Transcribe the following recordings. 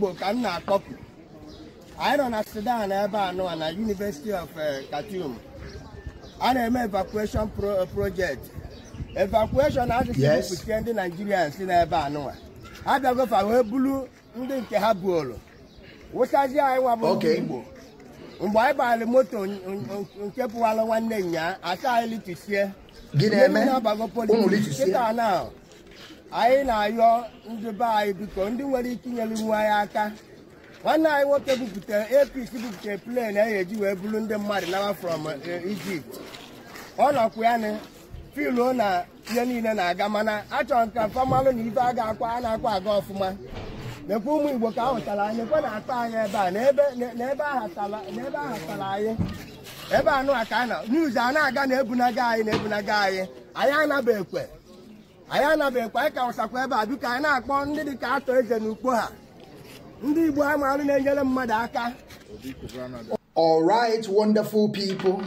igbo ka m na anyị na sudan ebe anụwa na yunivesiti of eh, Khartoum a na-eme evacuation eh, project evacuation asụsụ ndị naijiria si n'ebe anụwa ha bịagofa ndị nke ha buolu wụsazie anyị nwa bụ igbo mgbe anyị gbalị moto nke pụwalụ nwanne nya asa anyị na-ayọ ndị be anyị biko ndị nwere ike inyere iwu anyị aka nwanne anyị nwoke bupụta apc bupụta plen a eji wee bụrụ ndị mmadụ nawa from eh, Egypt ọ nọkwa ya filuo na ihe niile na-aga mana achọrọ ka famalụ na ibe a ga-akwa a na-akwa aga ọfụma mekwa ụmụ igbo ka ahụtara anyị ekwe na akpa anyị ebe a n'ebe ahatara anyị ebe anụ aka na niuz a na-aga na ebunaga anyị na ebunaga anyị anyị anaghị ekwe All right, wonderful people.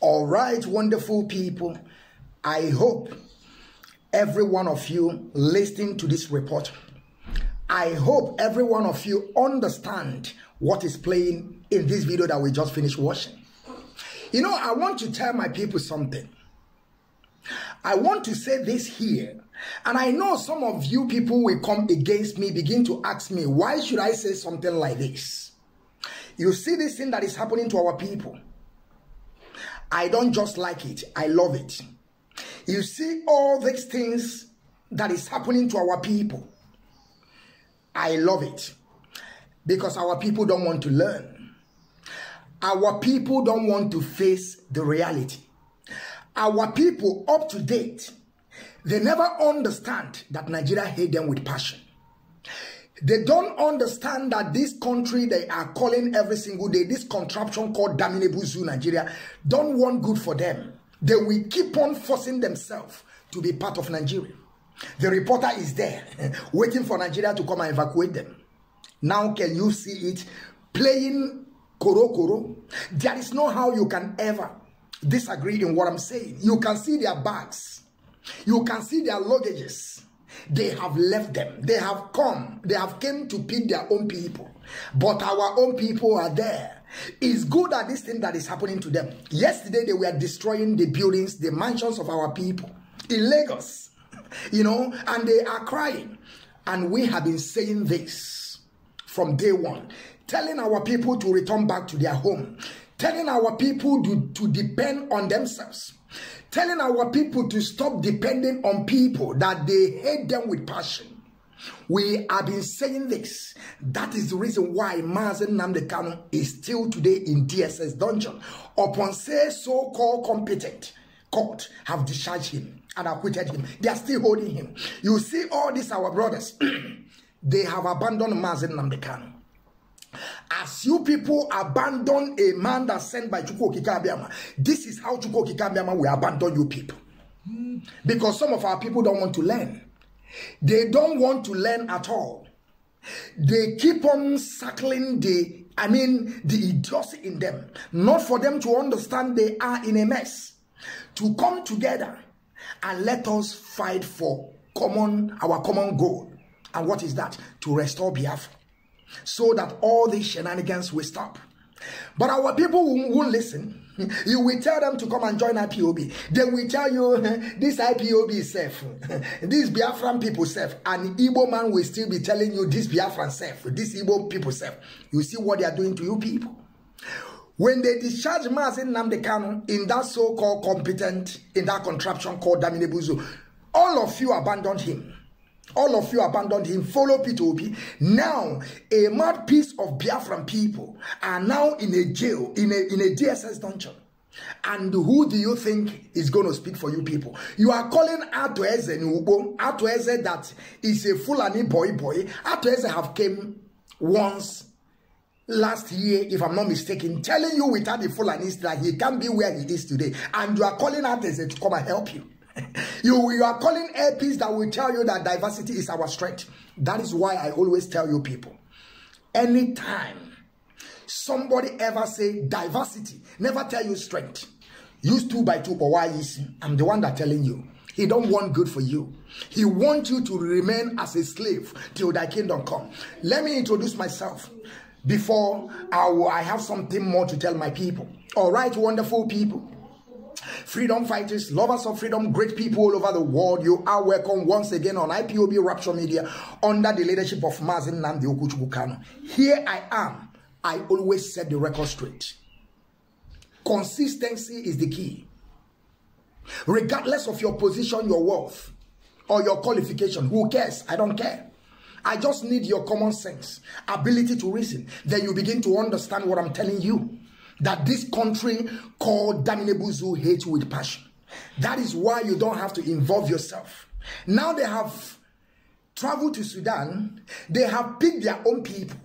All right, wonderful people. I hope every one of you listening to this report. I hope every one of you understand what is playing in this video that we just finished watching. You know, I want to tell my people something. I want to say this here. And I know some of you people will come against me, begin to ask me, why should I say something like this? You see this thing that is happening to our people. I don't just like it, I love it. You see all these things that is happening to our people. I love it because our people don't want to learn. Our people don't want to face the reality. Our people up to date, they never understand that Nigeria hate them with passion. They don't understand that this country they are calling every single day, this contraption called Damnable Zoo Nigeria, don't want good for them. They will keep on forcing themselves to be part of Nigeria. The reporter is there waiting for Nigeria to come and evacuate them. Now can you see it playing koro koro? There is no how you can ever disagreed in what I'm saying. You can see their bags. You can see their luggages. They have left them. They have come. They have came to pick their own people. But our own people are there. It's good at this thing that is happening to them. Yesterday, they were destroying the buildings, the mansions of our people in Lagos. You know, and they are crying. And we have been saying this from day one, telling our people to return back to their home, telling our people to, to depend on themselves, telling our people to stop depending on people that they hate them with passion. We have been saying this. That is the reason why Mazen Namdekano is still today in DSS dungeon. Upon say so-called competent court have discharged him and acquitted him. They are still holding him. You see all these our brothers. they have abandoned Mazen Namdekano. As you people abandon a man that's sent by Chukwu Kikabiama, this is how Chukwu Kikabiama will abandon you people. Because some of our people don't want to learn. They don't want to learn at all. They keep on circling the, I mean, the idiocy in them. Not for them to understand they are in a mess. To come together and let us fight for common, our common goal. And what is that? To restore Biafra. so that all these shenanigans will stop. But our people won't listen. You will tell them to come and join IPOB. They will tell you this IPOB is safe. These Biafran people safe. And Igbo man will still be telling you this Biafran safe. This Igbo people safe. You see what they are doing to you people. When they discharge mass in Namdekano in that so-called competent, in that contraption called Damine all of you abandoned him. all of you abandoned him, follow Peter Obi. Now, a mad piece of Biafran people are now in a jail, in a, in a DSS dungeon. And who do you think is going to speak for you people? You are calling Atueze Nubo, Atueze that is a Fulani boy boy. Atueze have came once last year, if I'm not mistaken, telling you without the Fulani that he can't be where he is today. And you are calling Atueze to come and help you. you, you are calling APs that will tell you that diversity is our strength. That is why I always tell you people, anytime somebody ever say diversity, never tell you strength. Use two by two power why is I'm the one that telling you. He don't want good for you. He want you to remain as a slave till thy kingdom come. Let me introduce myself before I, I have something more to tell my people. All right, wonderful people freedom fighters, lovers of freedom, great people all over the world. You are welcome once again on IPOB Rapture Media under the leadership of Mazin Namdi Here I am. I always set the record straight. Consistency is the key. Regardless of your position, your wealth, or your qualification, who cares? I don't care. I just need your common sense, ability to reason. Then you begin to understand what I'm telling you that this country called Daminibuzu hate with passion. That is why you don't have to involve yourself. Now they have traveled to Sudan, they have picked their own people.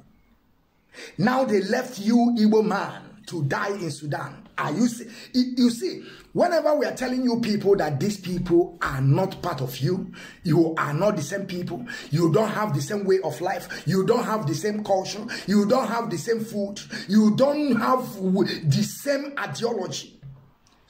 Now they left you, Igbo man, to die in Sudan. Are you see? You see, whenever we are telling you people that these people are not part of you, you are not the same people, you don't have the same way of life, you don't have the same culture, you don't have the same food, you don't have the same ideology.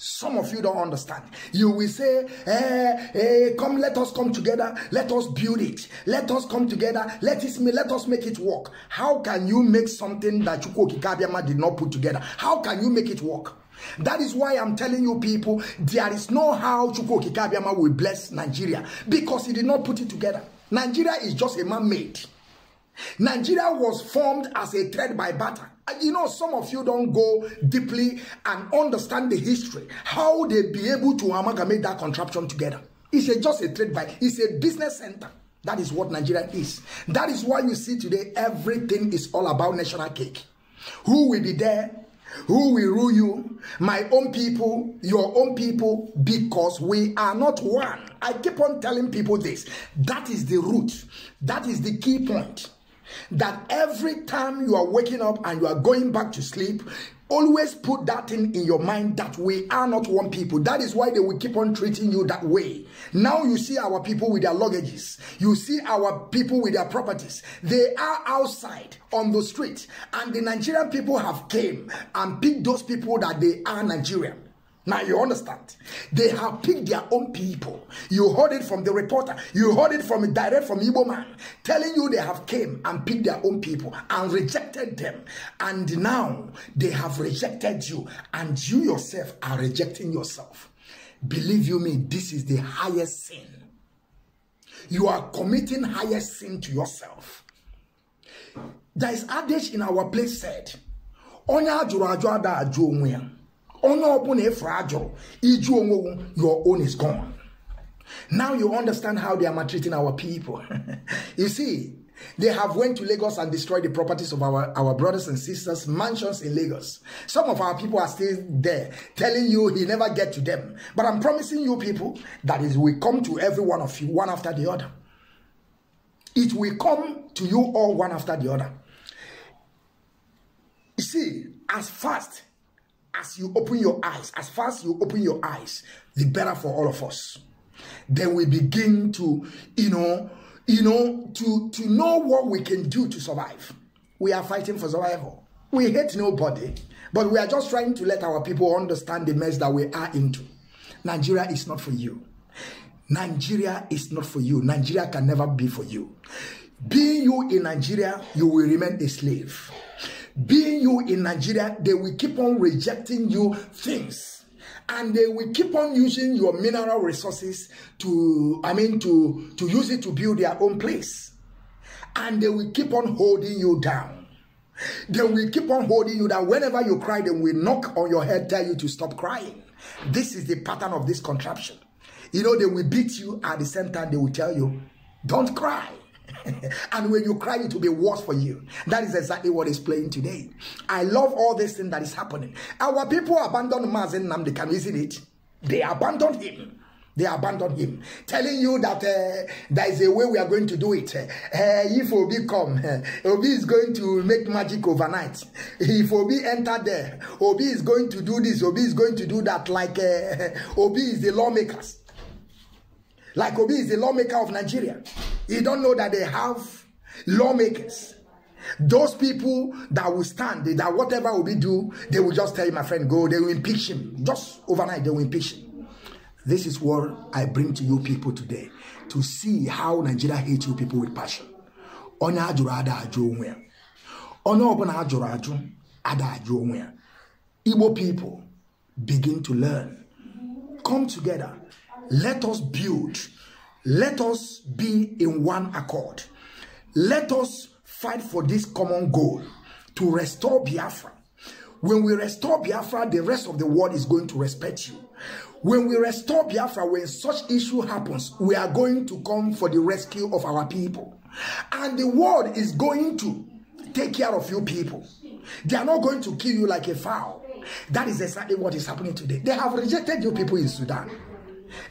Some of you don't understand. You will say, "Hey, eh, eh, come, let us come together. Let us build it. Let us come together. Let, let us make it work. How can you make something that Chukwu Kabiyama did not put together? How can you make it work? That is why I'm telling you people, there is no how Chukwu Kabiyama will bless Nigeria because he did not put it together. Nigeria is just a man-made. Nigeria was formed as a thread by butter. you know some of you don't go deeply and understand the history how they be able to amalgamate that contraption together it's a, just a trade by it's a business center that is what nigeria is that is why you see today everything is all about national cake who will be there who will rule you my own people your own people because we are not one i keep on telling people this that is the root that is the key point that every time you are waking up and you are going back to sleep, always put that thing in your mind that we are not one people. That is why they will keep on treating you that way. Now you see our people with their luggages, you see our people with their properties. They are outside on the street, and the Nigerian people have came and picked those people that they are Nigerian. Now you understand. They have picked their own people. You heard it from the reporter. You heard it from direct from Igbo man telling you they have came and picked their own people and rejected them. And now they have rejected you and you yourself are rejecting yourself. Believe you me, this is the highest sin. You are committing highest sin to yourself. There is adage in our place said, Onye ajụrụ ajụ ada onye ọbụla efe ajụrụ iju onwewu your own is gone now you understand how they are maltreating our people you see they have went to Lagos and destroyed the properties of our, our brothers and sisters, mansions in Lagos. Some of our people are still there, telling you he never get to them. But I'm promising you people that it will come to every one of you, one after the other. It will come to you all one after the other. You see, as fast as you open your eyes, as fast you open your eyes, the better for all of us. Then we begin to, you know, you know, to, to know what we can do to survive. We are fighting for survival. We hate nobody, but we are just trying to let our people understand the mess that we are into. Nigeria is not for you. Nigeria is not for you. Nigeria can never be for you. Being you in Nigeria, you will remain a slave being you in Nigeria, they will keep on rejecting you things. And they will keep on using your mineral resources to, I mean, to, to use it to build their own place. And they will keep on holding you down. They will keep on holding you down. Whenever you cry, they will knock on your head, tell you to stop crying. This is the pattern of this contraption. You know, they will beat you at the same time, they will tell you, don't cry and when you cry, it will be worse for you. That is exactly what is playing today. I love all this thing that is happening. Our people abandoned Mazen Namdekan, isn't it? They abandoned him. They abandoned him, telling you that uh, there is a way we are going to do it. Uh, if Obi come, uh, Obi is going to make magic overnight. If Obi enter there, Obi is going to do this, Obi is going to do that, like uh, Obi is the lawmakers. Like Obi is the lawmaker of Nigeria. he don't know that they have lawmakers. Those people that will stand, that whatever Obi do, they will just tell my friend, go. They will impeach him. Just overnight, they will impeach him. This is what I bring to you people today. To see how Nigeria hates you people with passion. Onye ajụrụ ada ajụ onwe ya. Onye ọbụla ajụrụ ajụ, ada ajụ Igbo people begin to learn. Come together. Let us build. Let us be in one accord. Let us fight for this common goal to restore Biafra. When we restore Biafra, the rest of the world is going to respect you. When we restore Biafra, when such issue happens, we are going to come for the rescue of our people. And the world is going to take care of you people. They are not going to kill you like a fowl. That is exactly what is happening today. They have rejected you people in Sudan.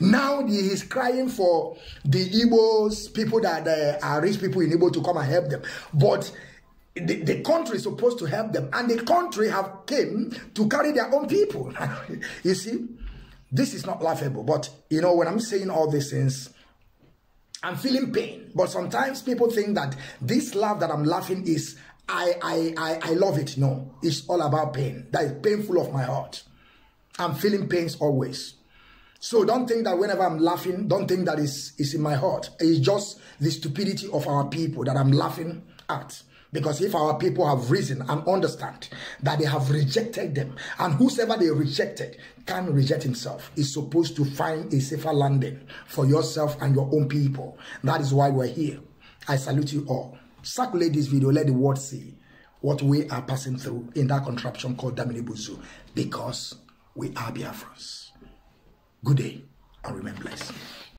Now he is crying for the Igbos, people that uh, are rich people in Igbo to come and help them. But the, the, country is supposed to help them. And the country have came to carry their own people. you see, this is not laughable. But, you know, when I'm saying all these things, I'm feeling pain. But sometimes people think that this laugh that I'm laughing is I, I, I, I love it. No, it's all about pain. That is painful of my heart. I'm feeling pains always. So don't think that whenever I'm laughing, don't think that it's, it's in my heart. It's just the stupidity of our people that I'm laughing at. Because if our people have reason and understand that they have rejected them, and whosoever they rejected can reject himself, is supposed to find a safer landing for yourself and your own people. That is why we're here. I salute you all. Circulate this video, let the world see what we are passing through in that contraption called Damini Buzu, because we are Biafrans. Good day and remain blessed.